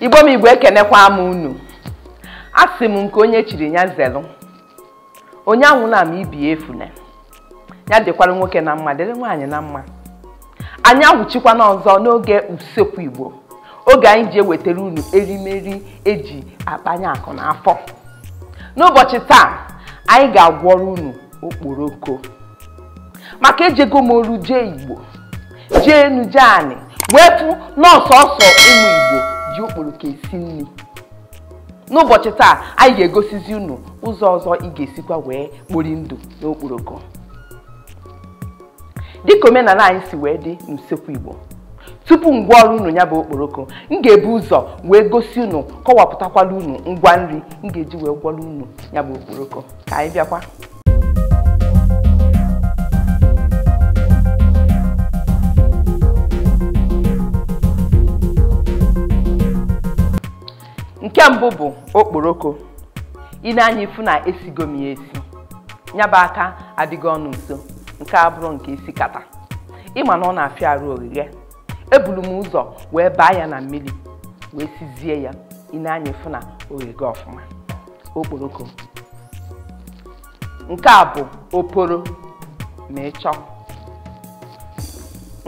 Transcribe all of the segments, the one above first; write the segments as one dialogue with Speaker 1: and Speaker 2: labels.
Speaker 1: igbo m igwe ekenekwa m unu asị m nke onye chiri ya zelu onye anwụla m ibi efuna ya dịkwara nwoke na mma dịrị nwaanyị na mma anyị agwụchikwana ọzọ n'oge usekwu igbo oge anyị ji ewetara unu erimeri eji akpanye akụ n'afọ n'ụbọchị taa anyị ga-agwọrọ unu okporoko maka ejego m oru jee igbo jee enu jee anị wee fụ ụmụ igbo ji okporoko esi nri n'ụbọchị taa anyị ga-egosizi unu ụzọ ọzọ ị ga-esikwa wee kpori ndụ n'okporoko dịka omenala anyị si wee dị n'usekwu Igbo tupu ọrụ unu ya bụ okporoko m ga-ebu ụzọ wee gosi unu kọwapụtakwala unu ngwa nri m ga-eji wee gwọrọ unu ya bụ okporoko ka anyị bịakwa nke mbụ bụ okporoko ị na-anya ifu na esigo m ya esi nyaba aka adịghị ọnụ nso nke a nke isi kata ịma na ọ na-afịa arụ ogige eburu m ụzọ wee baa ya na mmiri wee sizie ya ị na-anya ịfụ na ogige ọfụma okporoko nke a bụ oporo ma ịchọ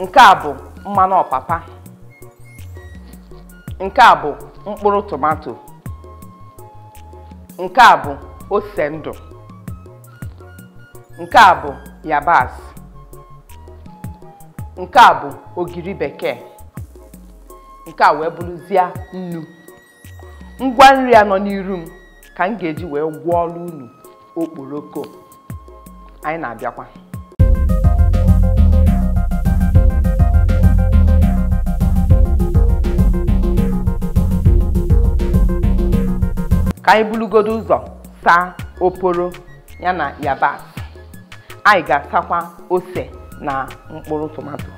Speaker 1: nke a bụ mmanụ ọpapa nke a bụ mkpụrụ tomato nke a bụ ose ndụ nke a bụ yabasị nke a bụ ogiri bekee nke a wee bụrụzie nnu ngwa nri a nọ n'iru m ka m ga-eji wee gwọọ ọrụ unu okporoko anyị na-abịakwa ka anyị bulugodo ụzọ saa oporo ya na yabas anyị ga-atakwa ose na mkpụrụ tomato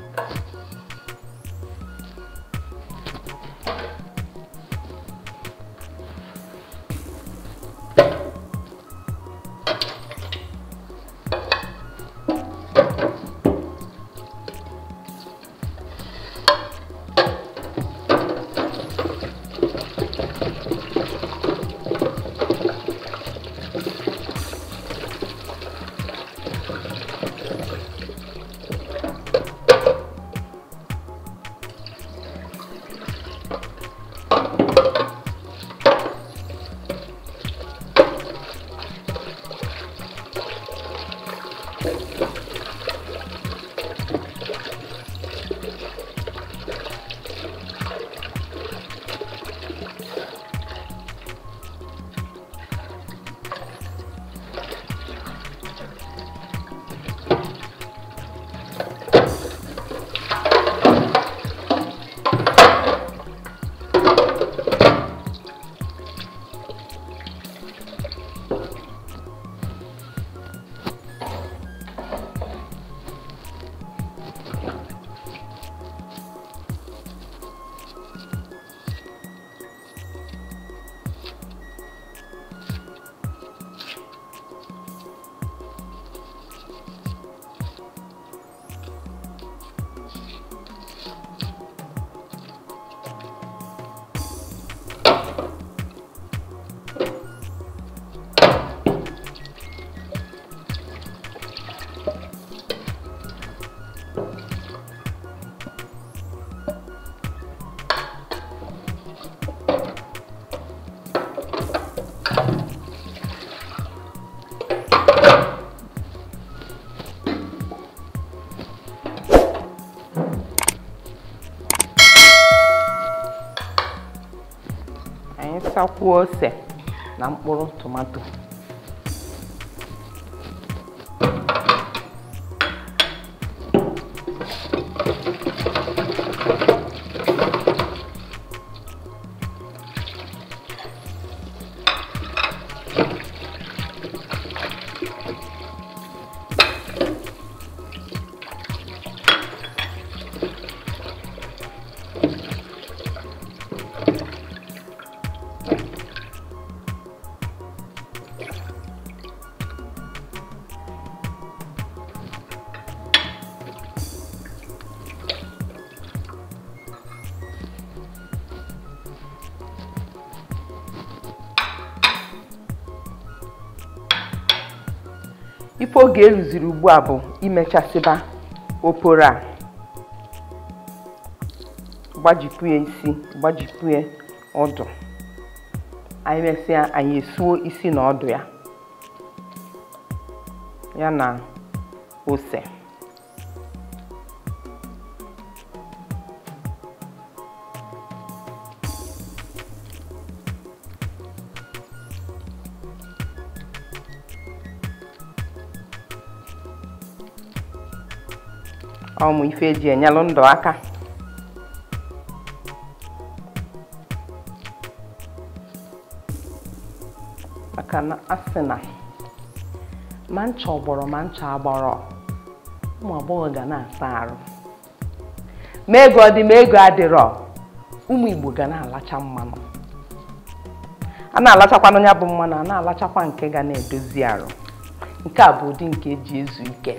Speaker 1: tụsakwuo ose na mkpụrụ tomato oge eruziri ugbu a bụ imechasịba oporo a gbajikwue isi gbajikwue ọdụ anyị mesịa anyị esuo isi na ọdụ ya ya na ose ọmụ ife eji enyelụ ndụ aka maka na asị na ma ncha ọgbọrọ ma ncha agbọrọ ụmụ agbọghọ ga na-asa arụ ma ego dị ma ego adịrọ ụmụ Igbo ga na-alacha mmanụ a na-alachakwanụ ya bụ mmanụ a na-alachakwa nke ga na-edozi arụ nke a bụ ụdị nke eji ezu ike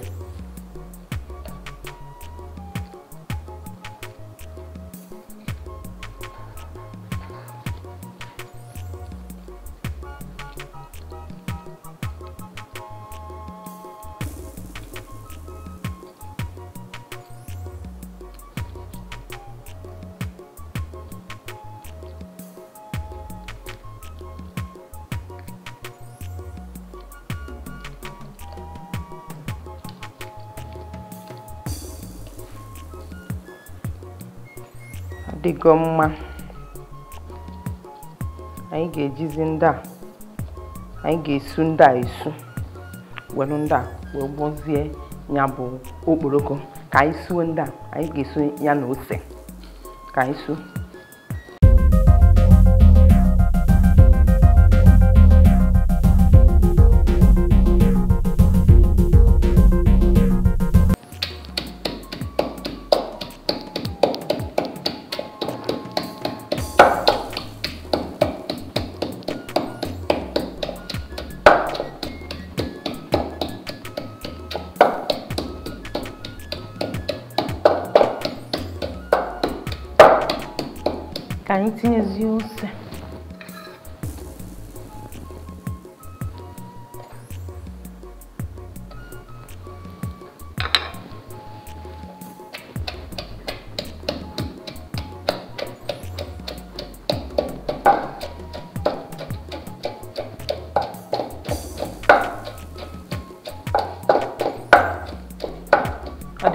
Speaker 1: dịgo mma anyị ga-ejizi ndị a anyị ga-esu ndị a esu welu ndị a wee gbozie ya bụ okporoko ka anyị suo ndị a anyị ga-esu ya na ose ka anyị suo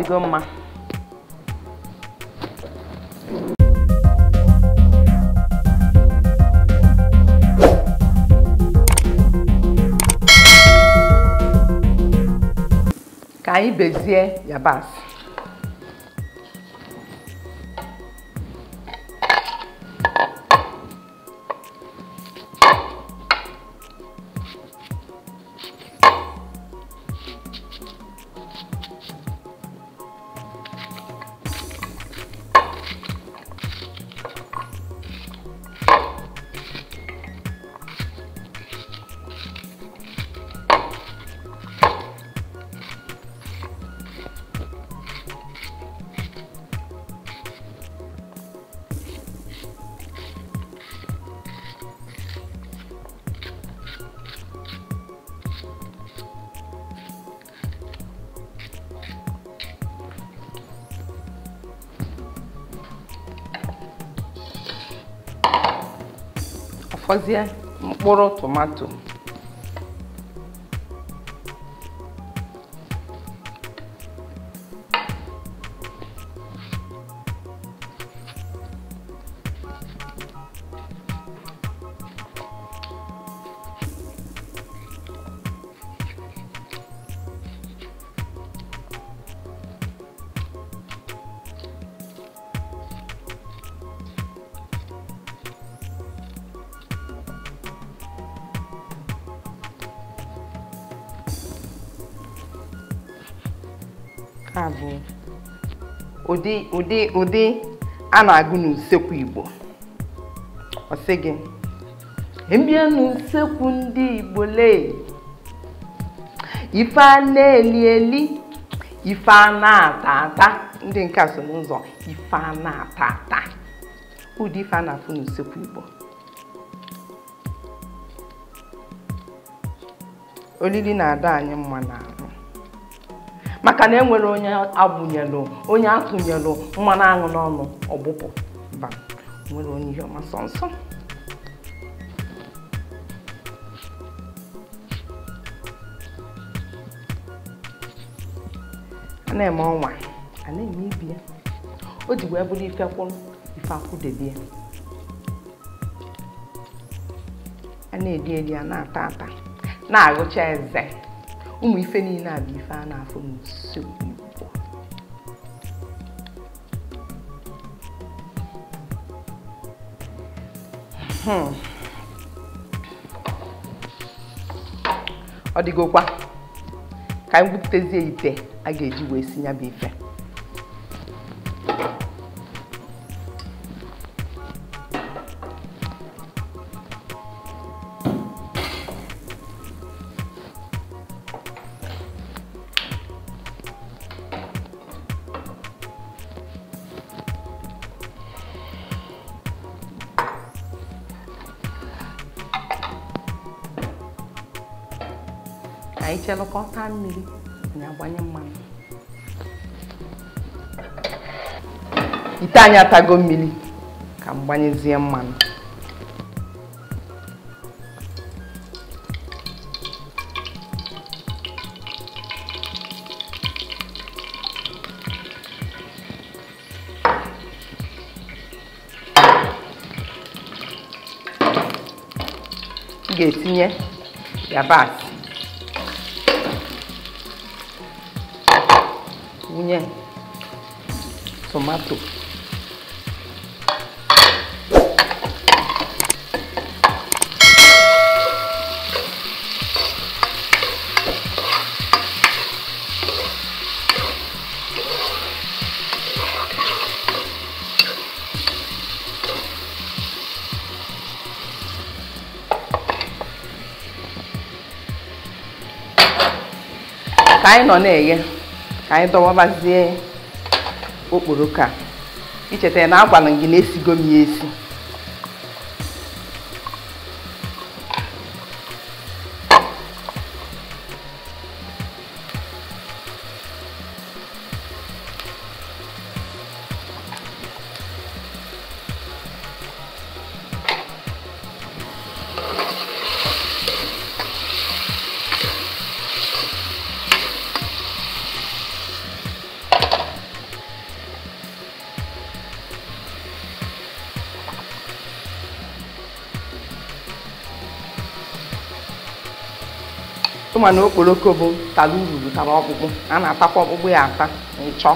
Speaker 1: ọdịgo mma ka anyị bezie yabasị fọzie mkpụrụ tomato ụdị ụdị ụdị a na-agụ n'usekwu Igbo ọsị gị mbịa n'usekwu ndị Igbo lee ife a na-eli eli ife a na-ata ata ndị nke so n'ụzọ ife a na-ata ata ụdị ife a na-afụ n'usekwu Igbo olili na-ada anyị mma maka na enwere onye agbụnyelụ onye atụnyelụ mmanụ aṅụ n'ọnụ ọgbụpụ mba nwere onye ihe ọma sọ nsọ a na-eme ọnwa a na-eme ibi ya o ji wee bụrụ ife kwụrụ ife akwụdebe ya a na-edi edi a na-ata ata na-agụcha eze ụmụ ife niile a bụ ife a na-afụ n'uso Igbo hmm. ọ dịgokwa ka anyị gwupụtazie ite a ga-eji wee si ya bụ ife ịchelụkọta mmiri anyị agbanye mmanụ ite anyị atago mmiri ka m gbanyezie mmanụ m Gatinha, já yabasị punya tomato cái nó này kìa ka anyị dọwabazie okporoko a ya na agwara m gị na esigo m ya esi ma na okporoko bụ tala ururu tala ọkpụkpụ a na-atakwa ọkpụkpụ ya ata ịchọ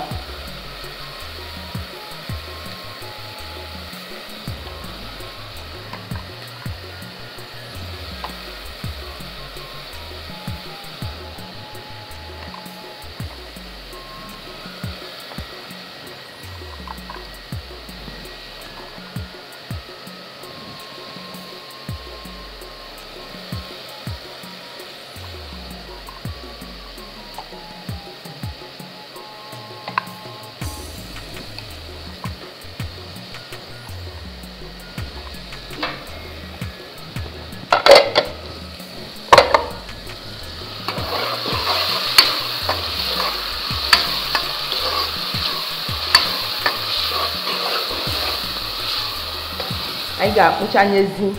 Speaker 1: anyị ga-akpụchanyezi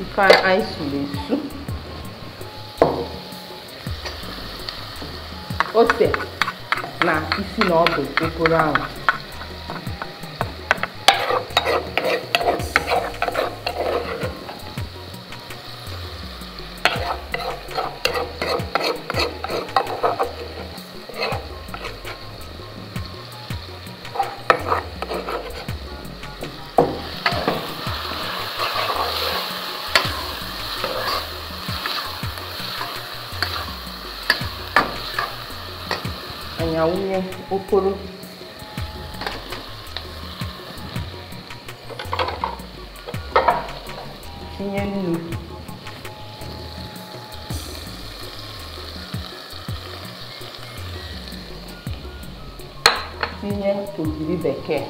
Speaker 1: ife anyị suru esu ose na isi na ọdụ okoro ahụ mkpụrụ tinye nnu tinye ogiri bekee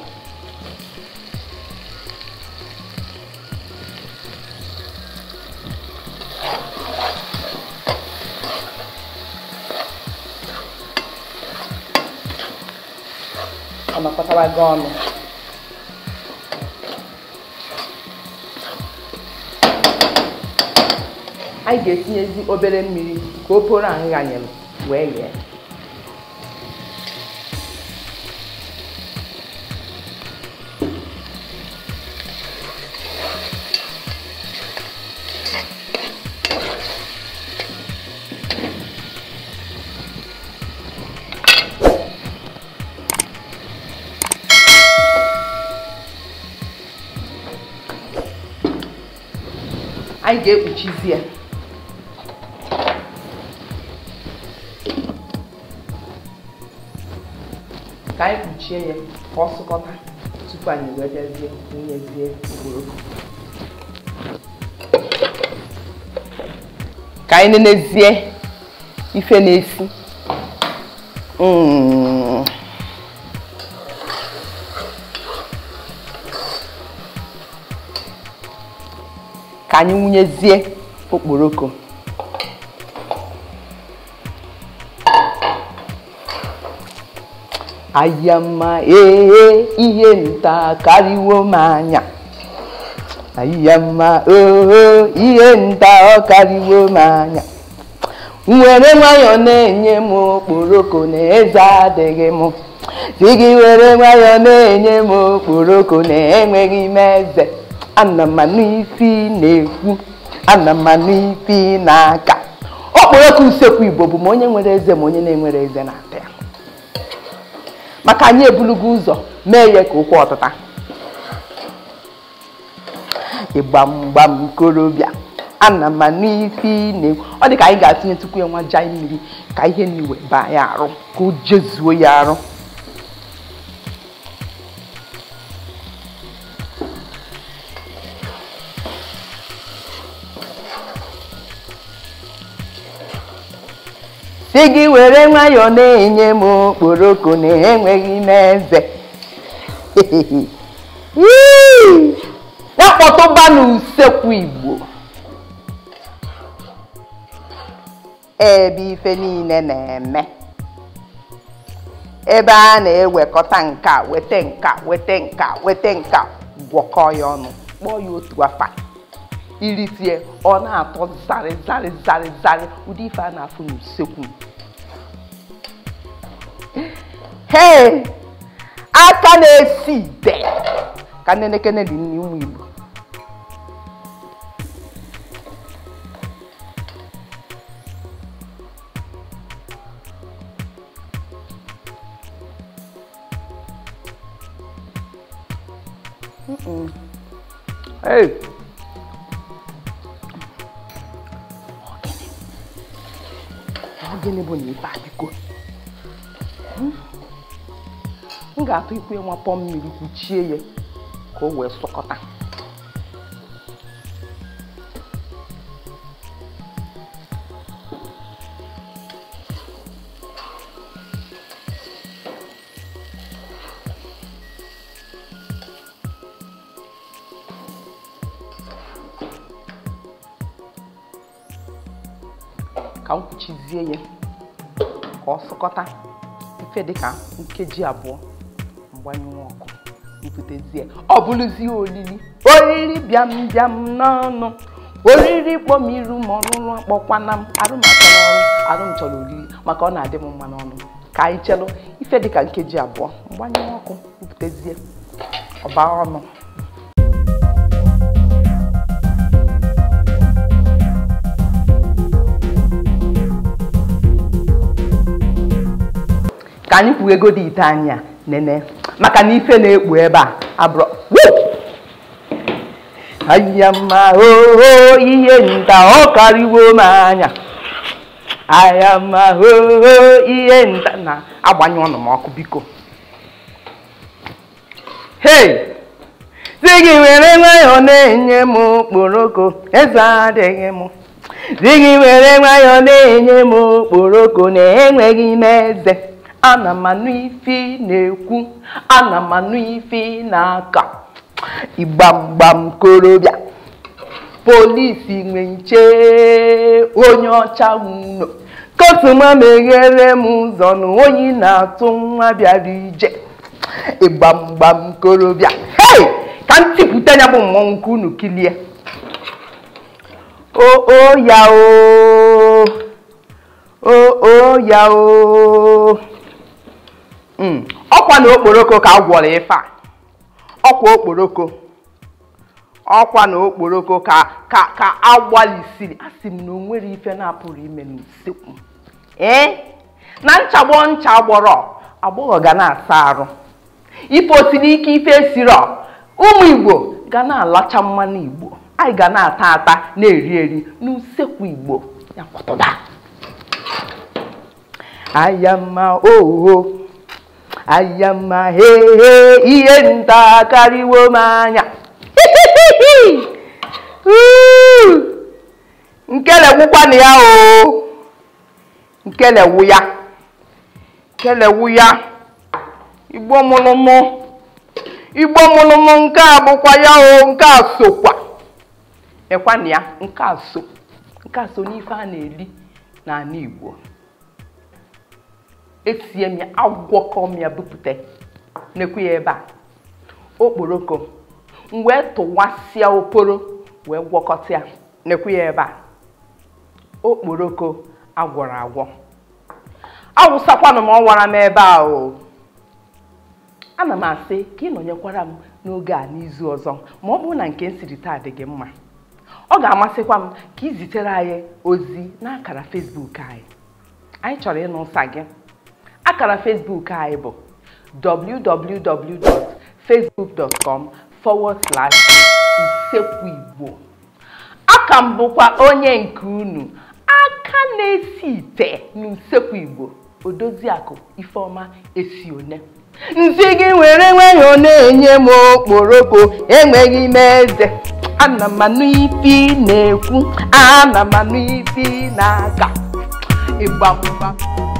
Speaker 1: kpọtara gị ọnụ anyị ga-etinyezi obere mmiri ka o poro ahụ ghanyere wee yee anyị ga-ekpuchizi ya ka anyị kpuchie ya ka ọ sụkọta tupu anyị wee bịazie wunyezie okporoko ka anyị nenezie ife na-esi ka anyị wunyezie okporoko ahịa mma ee e, ihe nta karịwo m anya ahịa mma oo ihe nta ọ karịwo m anya Nwere nwayọọ na-enye m okporoko na eze adịghị m dị gị were nwayọọ na-enye m okporoko na enweghị m eze ana m anụ ifi na-ekwu ana m anụ ifi na-aka ọkpọrọka usekwu igbo bụ ma onye nwere eze ma onye na-enwere eze na-ata ya maka anyị ebulugo ụzọ mee ya ka ụkwụ ọtụta ịgbamgbam korobịa ana m anụ ifi na-ekwu ọ dị ka anyị ga-atụnye tukwu ya nwa jai mmiri ka ihe na-iwe baa ya arụ ka o jezuo ya arụ si gị were nwayọọ na-enye m okporoko na-enweghị n'eze akpọtụba n'usekwu igbo ebe ife niile na-eme ebe a na-ewekọta nka weta nka weta nka weta nka gwọkọ ya ọnụ kpọọ ya otu afa irisi ya ọ na-atọ zarị zarị zarị zarị ụdị ife a na-afụ n'usekwu hei aka na-esi ide ka nnenekene dị nri Igbo Hey! Ogilebo na-ebe a biko m ga-atụ ikwe nwa pọ mmiri kpuchie ya ka o wee sọkọta dịka nkeji abụọ mgbanyụ ọkụ mbutezie, ọ bụrụzie olili oriri bịam bịam n'ọnụ oriri kpọmiru ma ọrụrụ akpọkwana m arụmachọrọ ọrụ chọrọ oriri maka ọ na-adị m mma n'ọnụ ka anyị chelụ ife dịka nkeji abụọ mgbanyụ ọkụ mbutezie, ọba ọnụ anyị kwuo ego dị ite anya a nene maka na ife na-ekpu ebe a abụrụ anya mma oho ihe nta ọ karịwo m anya anya mma oho ihe nta na-agbanye ọnụ m ọkụ biko hei di gị were nwayọọ na-enye m okporoko eze adịghị m di gị were nwayọọ na-enye m okporoko na-enweghị m eze ana m anụ ife na-ekwu ana m anụ ife na-aka ịgbamgbam korobịa polisi nwe nche onye ọcha ụlọ kotuma meghere m ụzọ na na-atụ nwa bịara ije ịgbamgbam korobịa hei ka m tipụta ya bụ mmọnwụ nke unu kilie oo ya oo O ya ọkwa na okporoko ka a gwọrọ ife a ọkwa okporoko ọkwa na okporoko ka ka ka a gbalịsiri asị m na o nwere ife na-apụrụ ime n'usekwu ee na nchagbo ncha gbọrọ agbọghọ ga na-asa arụ ife otiri ike ife ọ, ụmụ igbo ga na-alacha mmanụ igbo anyị ga na-ata ata na-eri eri n'usekwu igbo ya kwatụda ayama oho anya mma hehe ihe nta karịwo m anya nkelewukwana ya o nkelewu ya nkelewu ya igbo mụlụmụ igbo mụlụmụ nke a bụkwa ya o nke a sokwa ya nke a so nke a so n'ife a na-eli n'ala igbo esie m ya agwọkọ m ya bupute nekwu ya ebe a okporoko m wee e tụwasịa okporo wee gwọkọta ya nekwu ya ebe a okporoko agwọrọ agwọ awụsakwanụ m ọwara m ebe a o ana m asị ka ị nọnyekwara m n'oge a n'izu ọzọ ma ọ bụrụ na nke m siri taa dị gị mma ọ ga-amasịkwa m ka izitere anyị ozi n'akara Facebook anyị anyị chọrọ ịnụ ụsa gị akara Facebook anyị bụ www.facebook.com forward slash Usekwu Igbo aka m bụkwa onye nke unu aka na-esi ite n'Usekwu Igbo Odoziakụ Ifeoma esi one. nzi gị were nweghị na-enye m okporoko enweghị m eze ana m anụ ifi na-ekwu ana m anụ ifi na-aga ịgbamgba